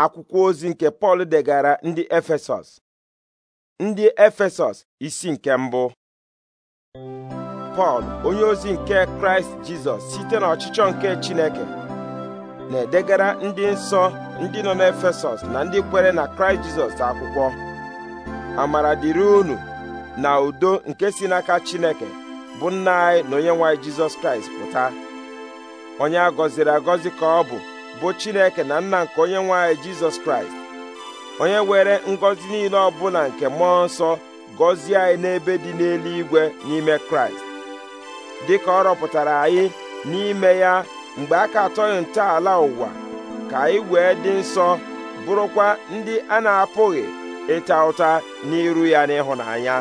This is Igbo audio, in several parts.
akwụkwọ ozi nke Pọl degara ndị Efesọs ndị Efesọs isi nke mbụ Pọl onye ozi nke Kraịst Jizọs site n'ọchịchọ nke Chineke na-edegara ndị nsọ ndị nọ n'Efesọs na ndị kwere na Kraịst Jizọs akwụkwọ amara dịrị unu na udo nke si n'aka Chineke bụ nna anyị na onye nwanyị Jizọs Kraịst pụta onye a gọziri agọzi ka ọ bụ bụ Chineke na nna nke onye nwe anyị Jizọs Kraịst onye were ngọzi niile ọbụla nke mmụọ nsọ gọzie anyị n'ebe dị n'eluigwe n'ime Kraịst dịka ọ rọpụtara anyị n'ime ya mgbe a ka atọghị ntọala ụwa ka anyị wee dị nsọ bụrụkwa ndị a na-apụghị ịta ụta n'iru ya n'ịhụnanya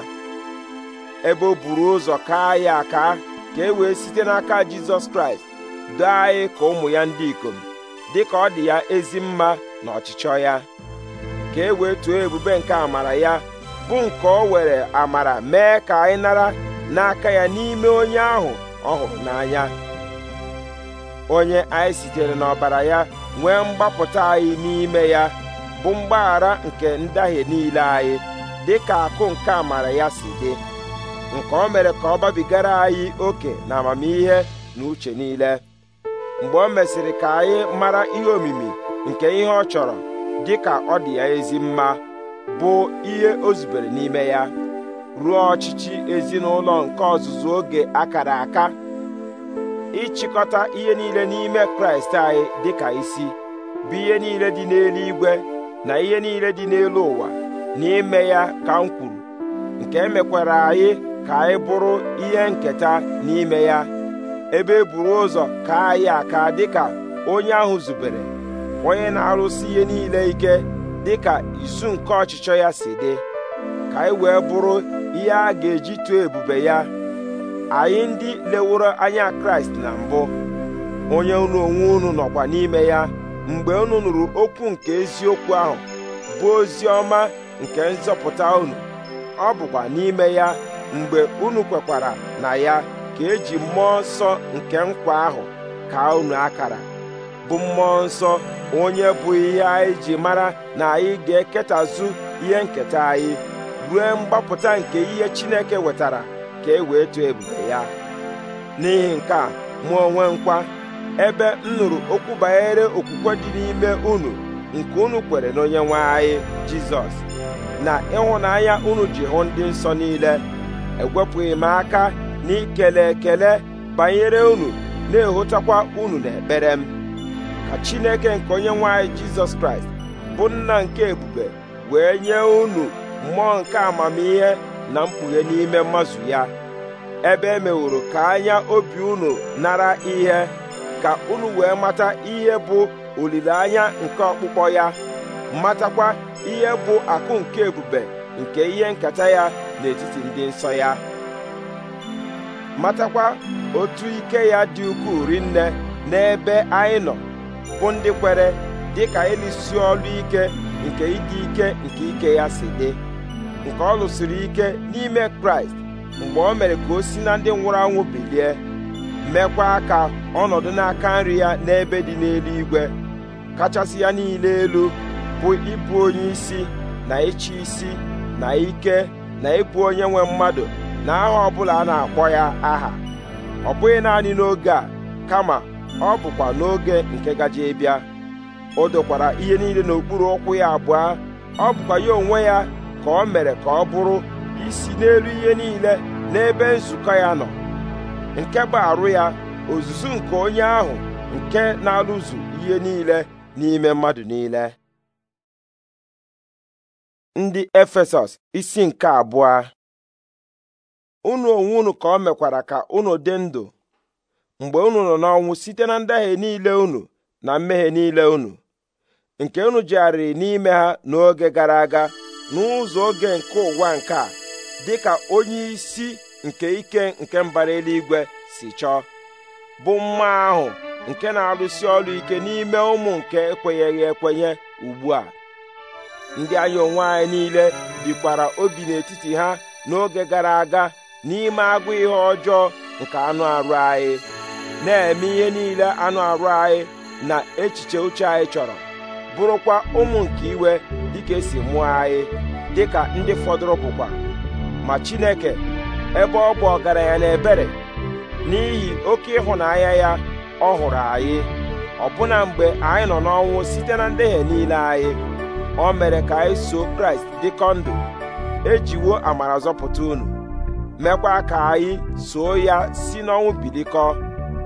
ebe o buru ụzọ kaa ya aka ka e wee site n'aka Jizọs Kraịst doo anyị ka ụmụ ya ndị ikom dị ka ọ dị ya ezi mma na ọchịchọ ya ka e wee tuo ebube nke amara ya bụ nke o were amara mee ka anyị nara n'aka ya n'ime onye ahụ ọ hụrụ n'anya onye anyị sitere n'ọbara ya nwee mgbapụta anyị n'ime ya bụ mgbaghara nke ndahie niile anyị dị ka akụ nke amara ya si dị nke o mere ka ọ gbabigara anyị oke na amamihe na uche niile mgbe o mesịrị ka anyị mara ihe omimi nke ihe ọ chọrọ dị ka ọ dị ya ezi mma bụ ihe o zubere n'ime ya ruo ọchịchị ezinụlọ nke ọzụzụ oge akara aka ịchịkọta ihe niile n'ime kraịst anyị dị ka isi bụ ihe niile dị n'elu igwe na ihe niile dị n'elu ụwa na ya ka m kwuru nke emekwara anyị ka anyị bụrụ ihe nketa n'ime ya ebe e buru ụzọ kaa ya aka dịka onye ahụ zubere onye na-arụsi ihe niile ike dịka isu nke ọchịchọ ya si dị ka anyị wee bụrụ ihe a ga-eji tụọ ebube ya anyị ndị leworo anya kraịst na mbụ onye unu onwe unu nọkwa n'ime ya mgbe unu nụrụ okwu nke eziokwu ahụ bụ ozi ọma nke nzọpụta unu ọ bụkwa n'ime ya mgbe unu kwekwara na ya nke eji mmụọ nsọ nke nkwa ahụ kaa unu akara bụ mmụọ nsọ onye bụ ihe anyị ji mara na anyị ga-eketazu ihe nketa anyị ruo mgbapụta nke ihe Chineke wetara ka e wee too ebube ya n'ihi nke a mụ onwe nkwa ebe m nụrụ okwu banyere okwukwe dị n'ime unu nke unu kwere n'onye nwe anyị Jizọs na ịhụnanya unu ji hụ ndị nsọ niile ewepụghị m aka n'ikele ikele ekele banyere unu na ehụtakwa unu n'ekpere m ka Chineke nke onye nwanyị Jizọs Kraịst bụ nna nke ebube wee nye unu mmụọ nke amamihe na mkpughe n'ime mmazu ya ebe e meworo ka anya obi unu nara ihe ka unu wee mata ihe bụ olileanya nke ọkpụkpọ ya matakwa ihe bụ akụ nke ebube nke ihe nketa ya n'etiti ndị nsọ ya matakwa otu ike ya dị ukwuu rinne n'ebe anyị nọ bụ ndị kwere dị ka ịlụsi ọlụ ike nke ịdị ike nke ike ya si dị nke ọ lụsiri ike n'ime kraịst mgbe o mere ka o si na ndị nwụrụ anwụ bilie meekwa aka ọnọdụ n'aka nri ya n'ebe dị n'elu igwe kachasị ya niile elu bụ ịbụ onye isi na ịchị isi na ike na ịbụ onye nwe mmadụ na aha ọbụla a na-akpọ ya aha ọ bụghị naanị n'oge a kama ọ bụkwa n'oge nke gaje bịa o dokwara ihe niile n'okpuru ụkwụ ya abụọ ọ bụkwa ya onwe ya ka o mere ka ọ bụrụ isi n'elu ihe niile n'ebe nzukọ ya nọ nke bụ arụ ya ozuzu nke onye ahụ nke na-alụzu ihe niile n'ime mmadụ niile ndị Efesọs isi nke abụọ unu onwe unu ka o mekwara ka unu dị ndụ mgbe unu nọ n'ọnwụ site na ndahie niile unu na mmehie niile unu nke unu jegharịrị n'ime ha n'oge gara aga n'ụzọ oge nke ụwa nke a dị ka onye isi nke ike nke mbara eluigwe si chọọ bụ mma ahụ nke na-arụsi ọrụ ike n'ime ụmụ nke ekwenyeghị ekwenye ugbu a ndị anya onwe anyị niile bikwara obi n'etiti ha n'oge gara aga n'ime agụ ihe ọjọọ nke anụ arụ anyị na-eme ihe niile anụ arụ anyị na echiche uche anyị chọrọ bụrụkwa ụmụ nke iwe dịka esi mụọ anyị dịka ndị fọdụrụ bụkwa ma Chineke ebe ọ bụ ọgaranya na ebere n'ihi oke ịhụnanya ya ọ hụrụ anyị ọbụna mgbe anyị nọ n'ọnwụ site na ndehie niile anyị o mere ka anyị so Kraịst dịkọ ndụ ejiwo amara zọpụta unu mekwa ka anyị soo ya si n'ọnwụ bilikọ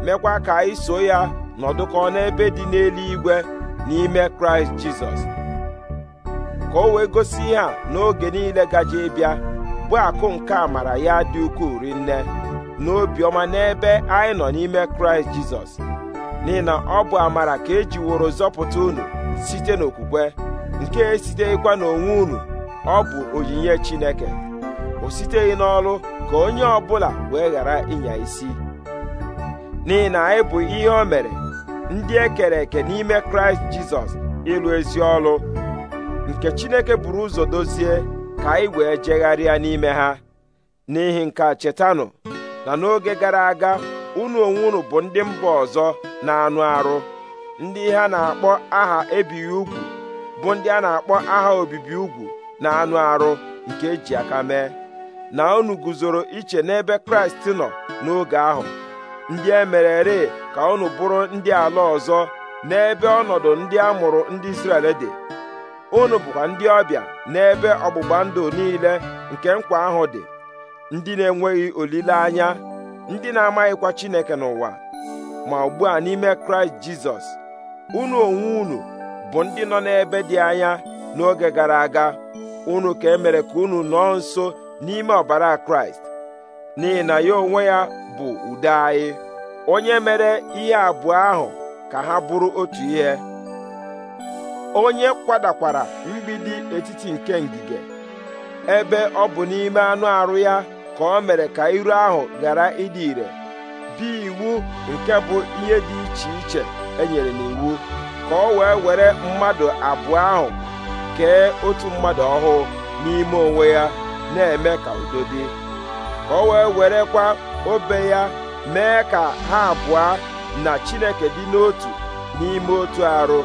mekwa ka anyị soo ya nọdụkọ n'ebe dị n'eluigwe n'ime kraịst jizọs ka o wee gosi ihe a n'oge niile gaje ịbịa bụ akụ nke amara ya dị ukwuu rinne obiọma n'ebe anyị nọ n'ime kraịst jizọs n'ihi na ọ bụ amara ka e woro zọpụta unu site n'okwukwe nke esiteghịkwa n'onwe unu ọ bụ onyinye chineke o siteghị n'ọlụ ka onye ọbụla wee ghara ịnya isi n'ihi na anyị bụ ihe o mere ndị e kere eke n'ime kraịst jizọs ịlụ ezi ọlụ nke chineke buru ụzọ dozie ka anyị wee jegharịa n'ime ha n'ihi nke a chetanụ na n'oge gara aga unu onwe unu bụ ndị mba ọzọ na-anụ arụ ndị ha na-akpọ aha ebighị ugwu bụ ndị a na-akpọ aha obibi ugwu na anụ arụ nke eji aka mee na unu guzoro iche n'ebe kraịst nọ n'oge ahụ ndị e ree ka unu bụrụ ndị ala ọzọ n'ebe ọnọdụ ndị a mụrụ ndị Izrel dị unu bụkwa ndị ọbịa n'ebe ọgbụgba ndụ niile nke nkwa ahụ dị ndị na-enweghị olileanya ndị na-amaghịkwa Chineke n'ụwa ma ugbu a n'ime Kraịst Jizọs unu onwe unu bụ ndị nọ n'ebe dị anya n'oge gara aga unu ka emere ka unu nọọ nso n'ime ọbara kraịst n'ihi na ya onwe ya bụ udo anyị onye mere ihe abụọ ahụ ka ha bụrụ otu ihe onye kwadakwara mgbidi etiti nke ngige ebe ọ bụ n'ime anụ arụ ya ka ọ mere ka iru ahụ ghara ịdị ire bi iwu nke bụ ihe dị iche iche enyere n'iwu ka o wee were mmadụ abụọ ahụ kee otu mmadụ ọhụụ n'ime onwe ya na-eme ka udo dị ka o wee werekwa obe ya mee ka ha abụọ na chineke dị n'otu n'ime otu arụ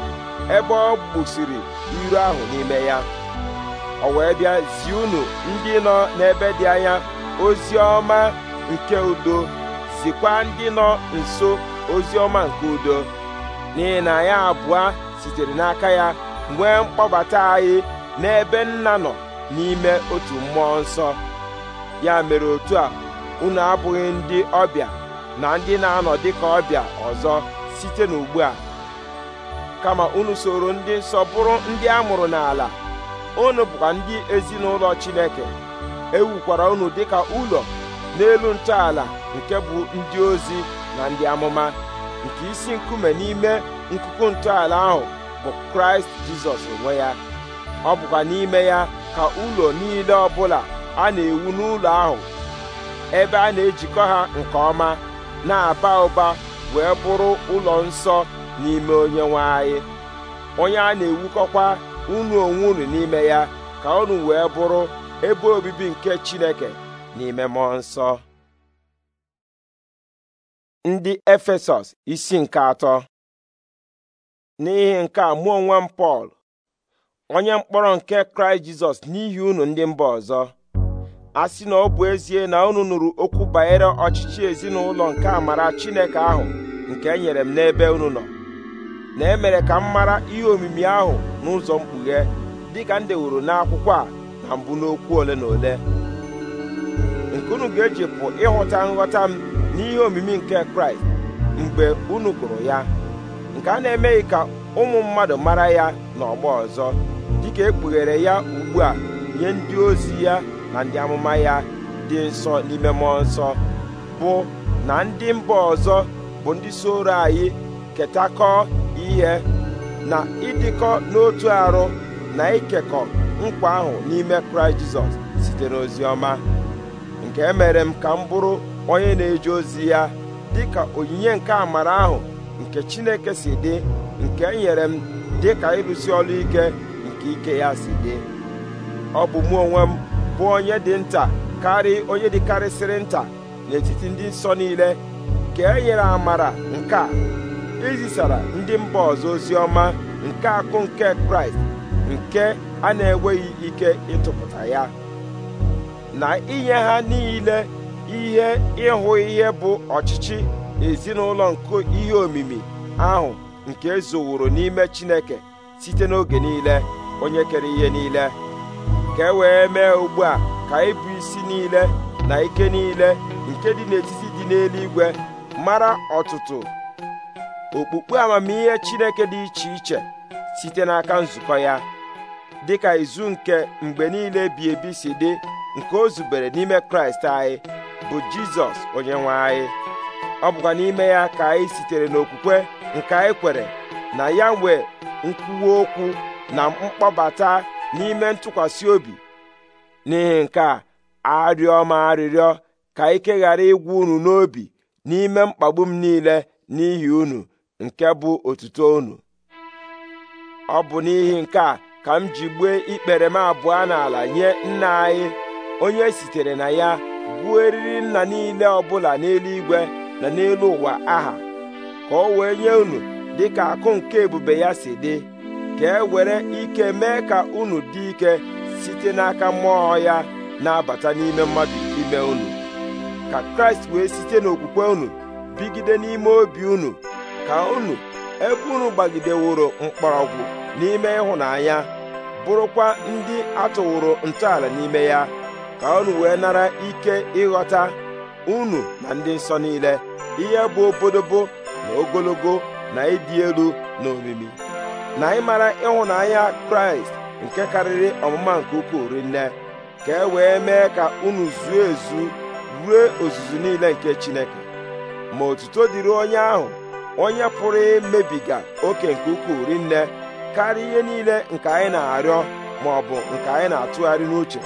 ebe ọ gbusiri iru ahụ n'ime ya o wee bịa zi unu ndị nọ n'ebe dị anya ozi ọma nke udo zikwa ndị nọ nso ozi ọma nke udo n'ihi na anyị abụọ sitere n'aka ya nwee mkpọbata anyị n'ebe nna nọ n'ime otu mmụọ nsọ ya mere otu a unu abụghị ndị ọbịa na ndị na-anọ dịka ọbịa ọzọ site n'ugbu a kama unu soro ndị nsọ bụrụ ndị a mụrụ n'ala unu bụkwa ndị ezinụlọ Chineke ewukwara unu dịka ụlọ n'elu ntọala nke bụ ndị ozi na ndị amụma nke isi nkume n'ime nkuku ntọala ahụ bụ Kraịst Jizọs onwe ya ọ bụkwa n'ime ya ka ụlọ niile ọbụla a na-ewu n'ụlọ ahụ ebe a na-ejikọ ha nke ọma na-aba ụba wee bụrụ ụlọ nsọ n'ime onye nwe anyị onye a na-ewukọkwa unu onwe unu n'ime ya ka ọnụ wee bụrụ ebe obibi nke Chineke n'ime mmụọ nsọ ndị Efesọs isi nke atọ n'ihi nke a mụ onwe m Pọl onye mkpọrọ nke kraịst jizọs n'ihi unu ndị mba ọzọ a sị na ọ bụ ezie na unu nụrụ okwu banyere ọchịchị ezinụlọ nke amara chineke ahụ nke e nyere m n'ebe unu nọ na emere ka m mara ihe omimi ahụ n'ụzọ mkpughe dịka m dewuru n'akwụkwọ a na mbụ n'okwu ole na ole nke unu ga-eji pụ ịghọta nghọta m n'ihe omimi nke kraịst mgbe unu gụrụ ya nke a na-emeghị ka ụmụ mmadụ mara ya n'ọgbọ ọzọ dịka ekpughere ya ugbu a nye ndị ozi ya na ndị amụma ya dị nsọ n'ime mmụọ nsọ bụ na ndị mba ọzọ bụ ndị soro anyị ketakọ ihe na ịdịkọ n'otu arụ na ikekọ nkwa ahụ n'ime kraịst jizọs site n'ozi ọma nke mere m ka m bụrụ onye na-eje ozi ya ka onyinye nke amara ahụ nke chineke si dị nke nyere m dị ka ịrụsi ọrụ ike nke ike ya si dị ọ bụ mụ onwe m bụ onye dị nta karị onye dịkarịsịrị nta n'etiti ndị nsọ niile ka e nyere amara nke a izisara e ndị mba ọzọ ozi ọma nke akụ nke kraịst nke a na-enweghị ike ịtụpụta ya na inye ha niile ihe ịhụ ihe bụ ọchịchị ezinụlọ nke ihe omimi ahụ nke ezowuru n'ime chineke site n'oge niile onye kere ihe niile ka e wee mee ugbu a ka ịbụ isi niile na ike niile nke dị n'etiti dị n'eluigwe mara ọtụtụ okpukpe amamihe Chineke dị iche iche site n'aka nzukọ ya dị ka izu nke mgbe niile bi ebi si dị nke o zubere n'ime Kraịst anyị bụ Jizọs onye nwe anyị ọ bụkwa n'ime ya ka anyị sitere n'okwukwe nke anyị kwere na ya nwee nkwuwa okwu na mkpọbata n'ime ntụkwasị obi n'ihi nke a arịọ m arịrịọ ka ike ghara ịgwụ unu n'obi n'ime mkpagbu m niile n'ihi unu nke bụ otuto unu ọ bụ n'ihi nke a ka m ji gbue ikpere m abụọ n'ala nye nna anyị onye sitere na ya gbuo eriri nna niile ọbụla n'eluigwe na n'elu ụwa aha ka o wee nye unu dịka akụ nke ebube ya si dị ka e were ike mee ka unu dị ike site n'aka mmụọ ya na-abata n'ime mmadụ ime unu ka kraịst wee site n'okwukwe unu bigide n'ime obi unu ka unu ebe unu gbagideworo mkpọrọgwụ n'ime ịhụnanya bụrụkwa ndị atụwụrụ ntọala n'ime ya ka unu wee nara ike ịghọta unu na ndị nsọ niile ihe bụ obodobo na ogologo na ịdị elu na omimi na ịmara ịhụnanya kraịst nke karịrị ọmụma nke ukwuu rinne ka e wee mee ka unu zuo ezu ruo ozuzu niile nke chineke ma otuto dịrị onye ahụ onye pụrụ imebiga oke nke ukwuu rinne karịa ihe niile nke anyị na-arịọ ma ọ bụ nke anyị na-atụgharị n'uche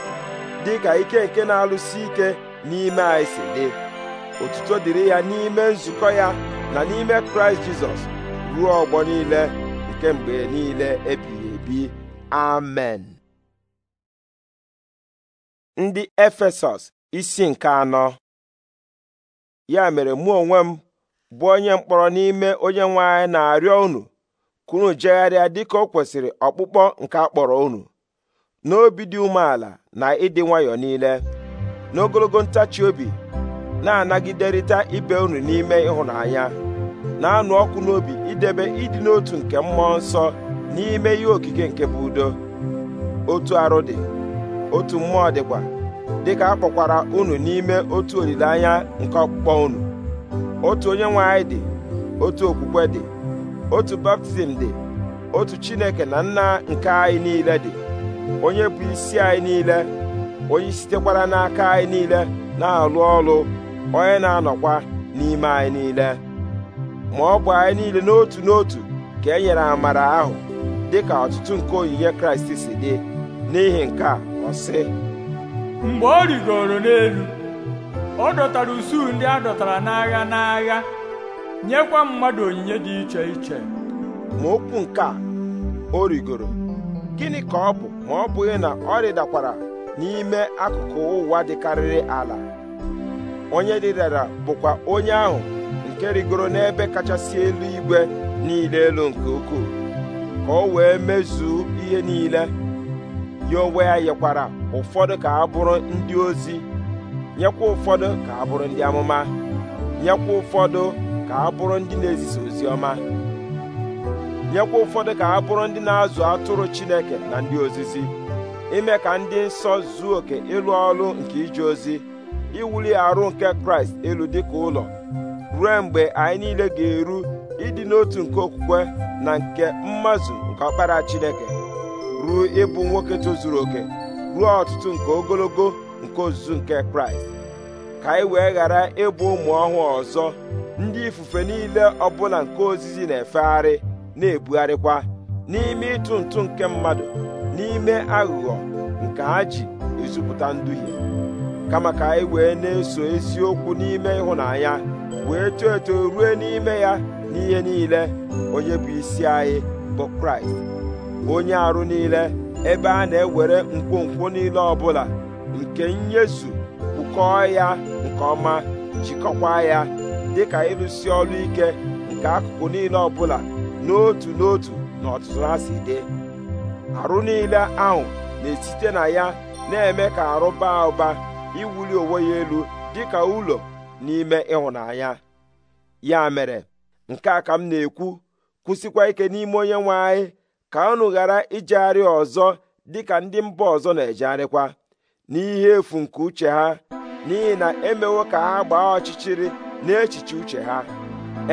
dị ka ike nke na-alụsi ike n'ime anyị si dị otuto dịrị ya n'ime nzukọ ya na n'ime kraịst jizọs ruo ọgbọ niile nke mgbe niile ebighị ebi amen ndị efesọs isi nke anọ ya mere mụ onwe m bụ onye mkpọrọ n'ime onye nwe anyị na-arịọ unu kunu unu jegharịa dịka o kwesịrị ọkpụkpọ nke akpọrọ unu n'obi dị umeala na ịdị nwayọọ niile n'ogologo ntachi obi na-anagiderịta ibe unu n'ime ịhụnanya na-anụ ọkụ n'obi idebe ịdị n'otu nke mmụọ nsọ n'ime ihe okike nke bụ udo otu arụ dị otu mmụọ dịkwa dịka a kpọkwara unu n'ime otu olileanya nke ọkpụkpọ unu otu onye nwe anyị dị otu okwukwe dị otu baptizim dị otu chineke na nna nke anyị niile dị onye bụ isi anyị niile onye sitekwara n'aka anyị niile na-alụ ọrụ onye na-anọkwa n'ime anyị niile ma ọ bụ anyị niile n'otu n'otu ka e nyere amara ahụ dị ka ọtụtụ nke onyinye kraịst si dị n'ihi nke a ọ sị mgbe ọ rigoro n'elu ọ dọtara usuu ndị a dọtara n'agha n'agha nyekwa mmadụ onyinye dị iche iche ma okwu nke a o rigoro gịnị ka ọ bụ ma ọ bụghị na ọ rịdakwara n'ime akụkụ ụwa dịkarịrị ala onye rịdara bụkwa onye ahụ nke rigoro n'ebe kachasị elu igwe niile elu nke ukwuu ka o wee mezuo ihe niile ya onwe ya yekwara ụfọdụ ka a bụrụ ndị ozi nyekwa ụfọdụ ka ha bụrụ ndị amụma nyekwa ụfọdụ ka a bụrụ ndị na-ezisa ozi ọma nyekwa ụfọdụ ka a bụrụ ndị na-azụ atụrụ Chineke na ndị ozizi ime ka ndị nsọ zuo oke ịlụ ọrụ nke ije ozi iwuli arụ nke Kraịst elu dịka ụlọ ruo mgbe anyị niile ga-eru ịdị n'otu nke okwukwe na nke mmazụ nke ọkpara Chineke ruo ịbụ nwoke tozuru oke ruo ọtụtụ nke ogologo nke ozuzu nke Kraịst ka anyị wee ghara ịbụ ụmụ ọhụụ ọzọ ndị ifufe niile ọbụla nke ozizi na-efegharị na-ebugharịkwa n'ime ịtụ ntụ nke mmadụ n'ime aghụghọ nke ha ji ezupụta nduhie kama ka anyị wee na-eso eziokwu n'ime ịhụnanya wee too eto ruo n'ime ya n'ihe niile onye bụ isi anyị bụ kraịst onye arụ niile ebe a na-ewere nkwonkwo niile ọbụla nke nyezu kwukọọ ya nke ọma jikọkwa ya dịka ịlụsi ọrụ ike nke akụkụ niile ọbụla n'otu n'otu na ọtụtụ ha si dị arụ niile ahụ na-esite na ya na-eme ka arụ baa ụba iwuli onwe ya elu dịka ụlọ n'ime ịhụnanya ya mere nke a ka m na-ekwu kwụsịkwa ike n'ime onye nwe anyị ka unu ghara ijegharị ọzọ ka ndị mba ọzọ na-ejegharịkwa n'ihe efu nke uche ha n'ihi na emewo ka ha gbaa ọchịchịrị n'echiche uche ha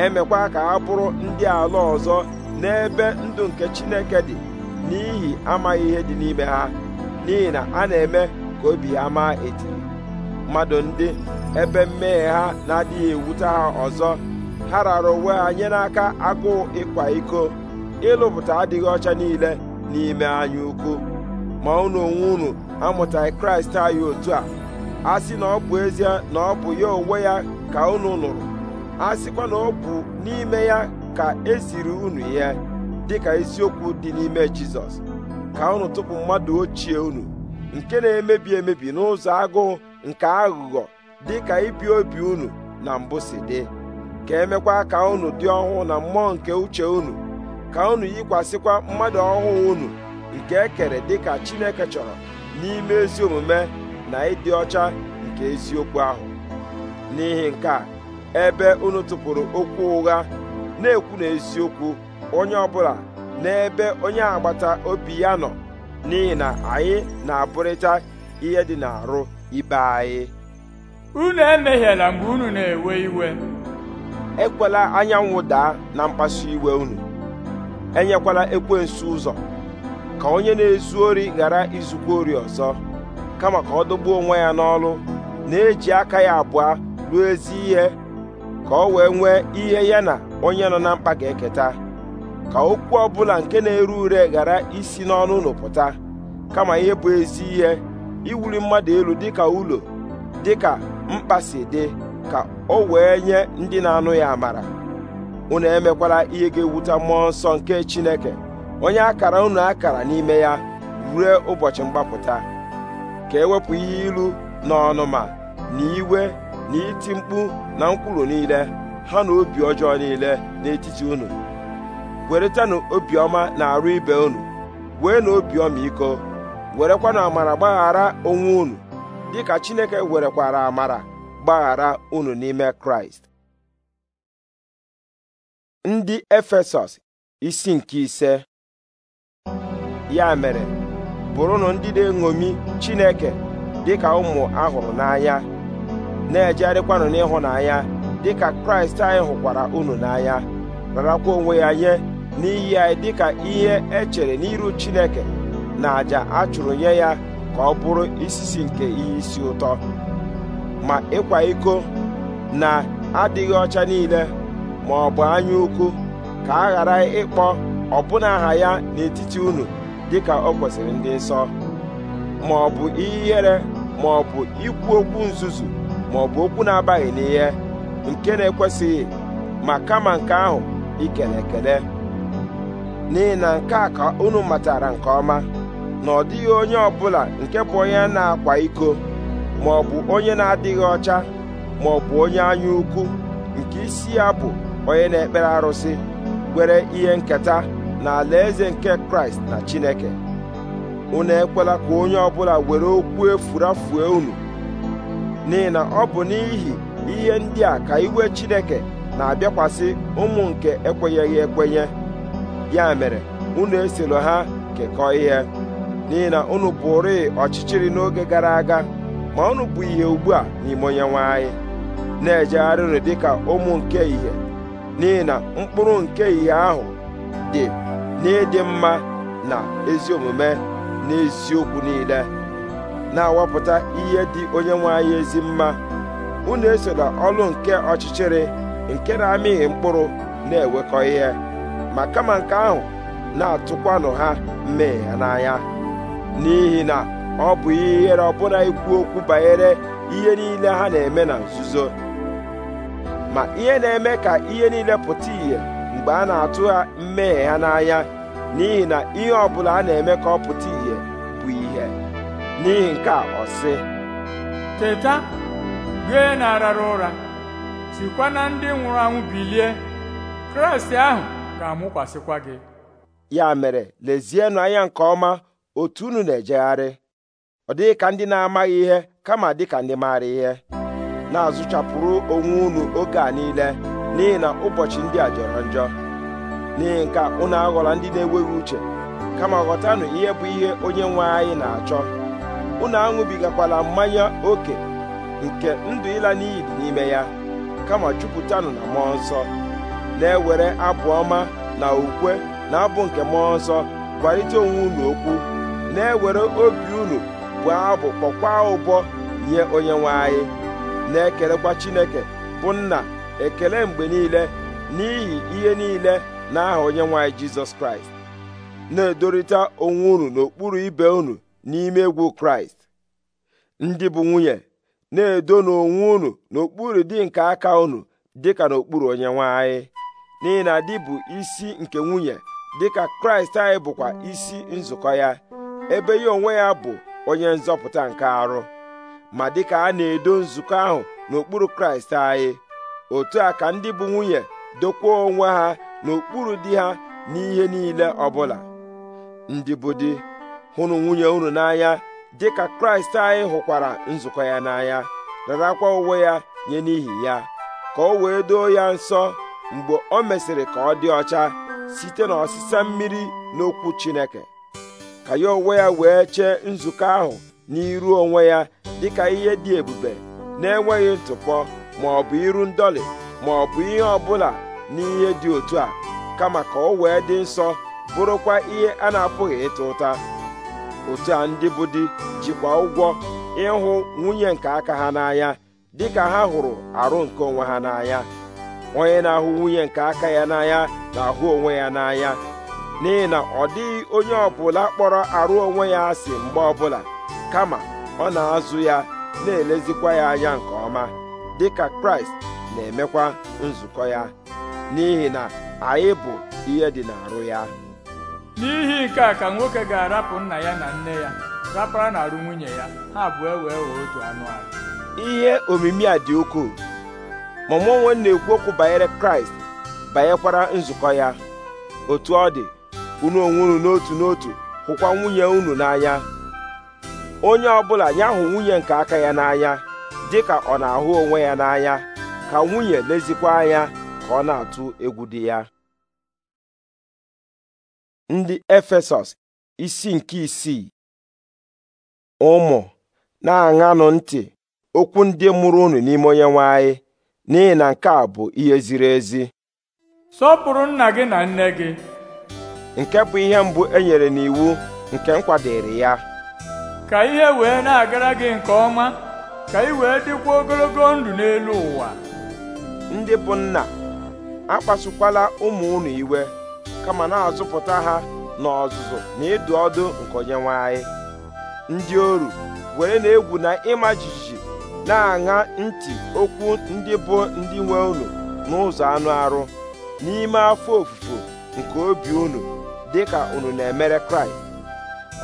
emekwa ka ha bụrụ ndị ala ọzọ n'ebe ndụ nke Chineke dị n'ihi amaghị ihe dị n'ime ha n'ihi na a na-eme ka obi ha maa etiri mmadụ ndị ebe mmehie ha na-adịghị ewute ha ọzọ ha rara onwe ha nye n'aka agụụ ịkwa iko ịlụpụta adịghị ọcha niile n'ime anya ukwu ma unu onwe unu amụtaghị kraịst anyị otu a a sị na ọ bụ ezie na ọ bụ ya onwe ya ka unu nụrụ a sịkwa na ọ bụ n'ime ya ka esiri unu ya dịka isiokwu dị n'ime jizọs ka unu tụpụ mmadụ ochie unu nke na-emebi emebi n'ụzọ agụụ nke aghụghọ dị ka ibi obi unu na mbụ si dị ka emekwa ka unu dị ọhụụ na mmụọ nke uche unu ka unu yikwasịkwa mmadụ ọhụụ unu nke ekere kere dị ka Chineke chọrọ n'ime ezi omume na ịdị ọcha nke eziokwu ahụ n'ihi nke a ebe unu tụpụrụ okwu ụgha na-ekwu na onye ọbụla n'ebe onye agbata obi ya nọ n'ihi na anyị na-abụrịta ihe dị n'arụ ibe anyị unu emehiela mgbe unu na-ewe iwe ekwela anyanwụ daa na mkpasu iwe unu enyekwala ekwensu ụzọ ka onye na-ezu ori ghara izukwa ori ọzọ kama ka ọ dọgbuo onwe ya n'ọlụ na-eji aka ya abụọ ruo ezi ihe ka ọ wee nwee ihe ya na onye nọ na mkpa ga-eketa ka okwu ọbụla nke na-ere ure ghara isi n'ọnụ unu pụta kama ihe bụ ezi ihe iwuli mmadụ elu dịka ụlọ dịka mkpa si dị ka o wee nye ndị na-anụ ya amara unu emekwala ihe ga-ewute mmụọ nsọ nke Chineke onye akara unu akara n'ime ya rue ụbọchị mgbapụta ka ewepụ ihe ilu na ọnụma na iwe na iti mkpu na nkwulu niile ha na obi ọjọọ niile n'etiti unu weretanụ obiọma na arụ ibe unu wee na obiọma iko. werekwanụ amara gbaghara onwe unu dịka Chineke werekwara amara gbaghara unu n'ime Kraịst ndị Efesọs isi nke ise ya mere bụrụnụ ndị na-eṅomi Chineke dịka ụmụ ahụrụ n'anya na-ejegharịkwanụ n'ịhụnanya dịka Kraịst anyị hụkwara unu n'anya rarakwa onwe ya nye n'iyi anyị dịka ihe e chere n'iru Chineke na àjà a chụrụ nye ya ka ọ bụrụ isisi nke ihe isi ụtọ ma ịkwa iko na adịghị ọcha niile ma ọ bụ anya ukwu ka a ghara ịkpọ ọbụna aha ya n'etiti unu dịka o kwesịrị ndị nsọ ma ọ bụ ihe ihere ma ọ bụ ikwu okwu nzuzu ma ọ bụ okwu na-abaghị n'ihe nke na-ekwesịghị ma kama nke ahụ ikele ekele n'ihi na nke a ka unu matara nke ọma na ọ dịghị onye ọbụla nke bụ onye na-akwa iko ma ọ bụ onye na-adịghị ọcha ma ọ bụ onye anya ukwu nke isi ya bụ onye na-ekpere arụsị nwere ihe nketa na alaeze nke kraịst na chineke unu ekwela ka onye ọbụla were okwu efurafue unu n'ihi na ọ bụ n'ihi ihe ndị a ka iwe chineke na-abịakwasị ụmụ nke ekwenyeghị ekwenye ya mere unu esoro ha kekọọ ihe n'ihi na unu bụrị ọchịchịrị n'oge gara aga ma unu bụ ihe ugbu a n'ime onyenwe anyị na ejegharị dị ka ụmụ nke ihe n'ihi na mkpụrụ nke ihe ahụ dị n'ịdị mma na ezi omume na eziokwu niile na-awapụta ihe dị onyenwe anyị ezi mma unu esola ọlụ nke ọchịchịrị nke na-amịghị mkpụrụ na-ewekọ ihe ma kama nke ahụ na-atụkwanụ ha mmehie n'anya n'ihi na ọ bụ ihere ọbụla ikwu okwu banyere ihe niile ha na-eme na nzuzo ma ihe na-eme ka ihe niile pụta ìhè mgbe a na-atụ ha mmehie ha n'anya n'ihi na ihe ọbụla a na-eme ka ọ pụta ìhè bụ ihe n'ihi nke ọsị ọ teta gị na-arara ụra sikwa na ndị nwụrụ anwụ bilie kraịst ahụ ga-amụkwasịkwa gị ya mere lezienụ anya nke ọma otu unu na-ejegharị ọ dịghị ka ndị na-amaghị ihe kama dịka ndị maara ihe na-azụchapụrụ onwe unu oge a niile n'ihi na ụbọchị ndị a jọrọ njọ n'ihi nke unu aghọla ndị na-enweghị uche kama ghọtanụ ihe bụ ihe onye nwe anyị na-achọ unu aṅụbigakwala mmanya oke nke ndụ ịla n'iyi dị n'ime ya kama jupụtanụ na mmụọ nsọ na-ewere abụ ọma na ukwe na abụ nke mmụọ nsọ gwarịta onwe unu okwu na-ewere obi unu bụ abụ kpọkwa ụbọ nye onyenwe anyị na-ekelekwa Chineke bụ nna ekele mgbe niile n'ihi ihe niile n'aha onyenwe anyị Jizọs Kraịst na-edorịta onwe unu n'okpuru ibe unu n'ime egwu Kraịst ndị bụ nwunye na-edo n'onwe unu n'okpuru di nke aka unu dịka n'okpuru onyenwe anyị n'ihi na bụ isi nke nwunye dịka Kraịst anyị bụkwa isi nzukọ ya ebe ya onwe ya bụ onye nzọpụta nke arụ ma dịka a na-edo nzukọ ahụ n'okpuru kraịst anyị otu a ka ndị bụ nwunye dokwuo onwe ha n'okpuru di ha n'ihe niile ọbụla ndị bụ di hụrụ nwunye unu n'anya dịka kraịst anyị hụkwara nzukọ ya n'anya rarakwa onwe ya nye n'ihi ya ka o wee doo ya nsọ mgbe o mesịrị ka ọ dị ọcha site n'ọsịsa mmiri n'okwu Chineke ka ya onwe ya wee chee nzukọ ahụ n'iru onwe ya dịka ihe dị ebube na-enweghị ntụpọ ma ọ bụ iru ndọlị ma ọ bụ ihe ọbụla n'ihe dị otu a kama ka ọ wee dị nsọ bụrụkwa ihe a na-apụghị ịta ụta otu a ndị bụ di jikwa ụgwọ ịhụ nwunye nke aka ha n'anya dịka ha hụrụ arụ nke onwe ha n'anya onye na-ahụ nwunye nke aka ya n'anya na-ahụ onwe ya n'anya n'ihi na ọ dịghị onye ọbụla kpọrọ arụ onwe ya asị mgbe ọbụla kama ọ na-azụ ya na-elezikwa ya anya nke ọma dịka kraịst na-emekwa nzukọ ya n'ihi na anyị bụ ihe dị n'arụ ya n'ihi nke a ka nwoke ga-arapụ nna ya na nne ya rapara na-arụ nwunye ya ha abụọ wee wee otu anụ ahụ ihe omimi a dị ukwuu ma mụ onwe na-ekwu okwu banyere kraịst banyekwara nzukọ ya otu ọ dị unu onwe n'otu n'otu hụkwa nwunye unu n'anya onye ọbụla ya hụ nwunye nke aka ya n'anya ka ọ na-ahụ onwe ya n'anya ka nwunye lezikwa anya ka ọ na-atụ egwu dị ya ndị Efesọs isi nke isii ụmụ na-aṅanụ ntị okwu ndị mụrụ unu n'ime onye nwe anyị n'ihi na nke a bụ ihe ziri ezi sọpụrụ nna gị na nne gị nke bụ ihe mbụ e nyere n'iwu nke nkwadịrị ya ka ihe wee na-agara gị nke ọma ka ị wee dịkwa ogologo ndụ n'elu ụwa ndị bụ nna akpasukwala ụmụ unu iwe kama na-azụpụta ha n'ọzụzụ na ịdụ ọdụ nke onyenwe ndị oru were na-egwu na ịma jijiji na-aṅa ntị okwu ndị bụ ndị nwe unu n'ụzọ anụ arụ n'ime afọ ofufo nke obi unu dị ka unu na-emere kraịst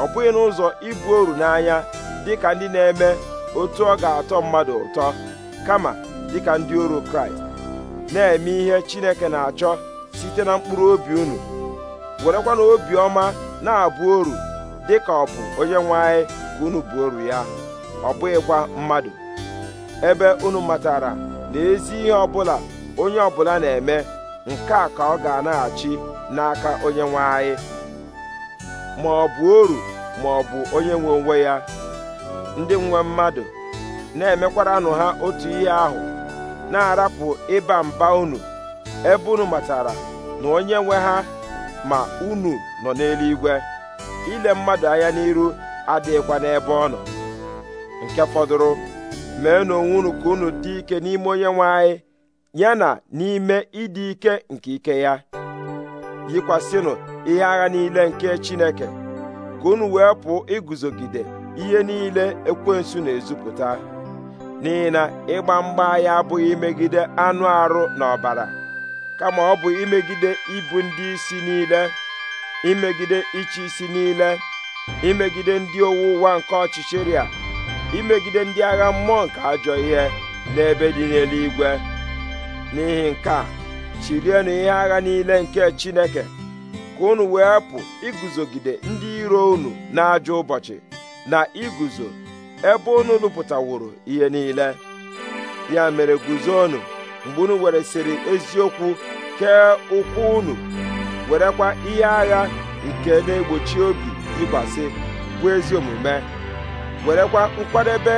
ọ bụghị n'ụzọ ibu oru n'anya dị ka ndị na-eme otu ọ ga-atọ mmadụ ụtọ kama dịka ndị oru kraịst na-eme ihe chineke na-achọ site na mkpụrụ obi unu werekwa obi ọma na-abụ oru dị ka ọ bụ onye nwe anyị ka unu bụ oru ya ọ bụghịkwa mmadụ ebe unu matara na ezi ihe ọbụla onye ọbụla na-eme nke a ka ọ ga-anaghachi n'aka onye nwe anyị ma ọ bụ oru ma ọ bụ onye nwe onwe ya ndị nwe mmadụ na-emekwaranụ ha otu ihe ahụ na-arapụ ịba mba unu ebe unu matara na onye nwe ha ma unu nọ n'eluigwe ile mmadụ anya n'iru adịghịkwa n'ebe ọ nọ nke fọdụrụ mee n'onwe unu ka unu dị ike n'ime onye nwe anyị ya na n'ime ịdị ike nke ike ya yikwasịnụ ihe agha niile nke Chineke ka unu wee pụọ iguzogide ihe niile ekwensu na-ezupụta n'ihi na ịgba mgba ya abụghị imegide anụ arụ na ọbara kama ọ bụ imegide ibu ndị isi niile imegide ịchị isi niile imegide ndị owu ụwa nke ọchịchịrị imegide ndị agha mmụọ nke ajọ ihe n'ebe dị n'eluigwe n'ihi nke a chirienụ ihe agha niile nke Chineke ka unu wee pụ iguzogide ndị iro unu n'ajọ ụbọchị na iguzo ebe unu lụpụtaworo ihe niile ya mere guzonụ mgbe unu weresịrị eziokwu kee ụkwụ unu werekwa ihe agha nke na-egbochi obi ịgbasị bụ ezi omume werekwa nkwadebe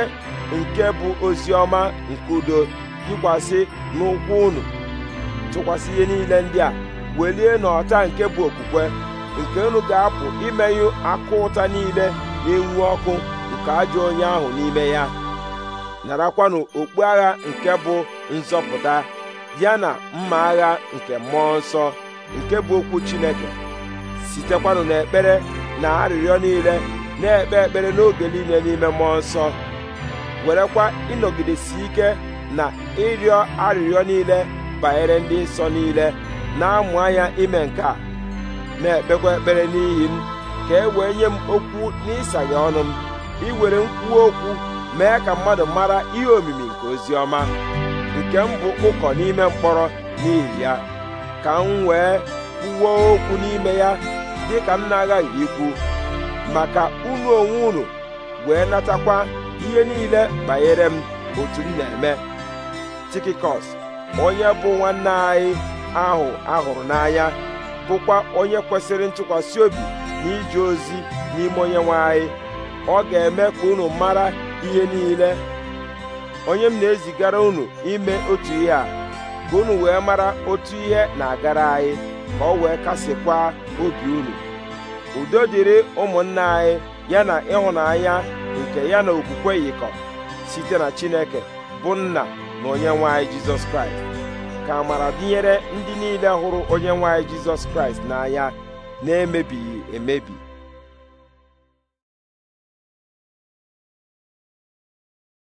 nke bụ ozi ọma nke udo yikwasị n'ụkwụ unu tụkwasị ihe niile ndị a welie n'ọta nke bụ okwukwe nke unu ga-apụ imenyụ akụ ụta niile na-enwu ọkụ nke ajọ onye ahụ n'ime ya narakwanụ okpu agha nke bụ nzọpụta ya na mma agha nke mmụọ nsọ nke bụ okwu Chineke sitekwanụ n'ekpere na arịrịọ niile na-ekpe ekpere n'oge niile n'ime mmụọ nsọ werekwa ịnọgidesi ike na ịrịọ arịrịọ niile banyere ndị nsọ niile na-amụ anya ime nke a na-ekpekwa ekpere n'ihi m ka e wee nye m okwu n'ịsaghe ọnụ m iwere nkwuwa okwu mee ka mmadụ mara ihe omimi nke ozi ọma nke m bụ ụkọ n'ime mkpọrọ n'ihi ya ka m wee kwuwo okwu n'ime ya dị ka m na agaghị ikwu maka unu onwe unu wee natakwa ihe niile banyere m otu m na-eme tikikọs onye bụ nwanne anyị ahụ ahụrụ n'anya bụkwa onye kwesịrị ntụkwasị obi na ije ozi n'ime onye nwe anyị ọ ga-eme ka unu mara ihe niile onye m na-ezigara unu ime otu ihe a ka unu wee mara otu ihe na-agara anyị ka ọ wee kasịkwa obi unu udo dịrị ụmụnna anyị ya na ịhụnanya nke ya na okwukwe yikọ site na Chineke bụ nna na onye nwe anyị jizọs kraịst ka amara dịnyere ndị niile hụrụ onye nwe anyị jizọs kraịst n'anya na-emebighị emebi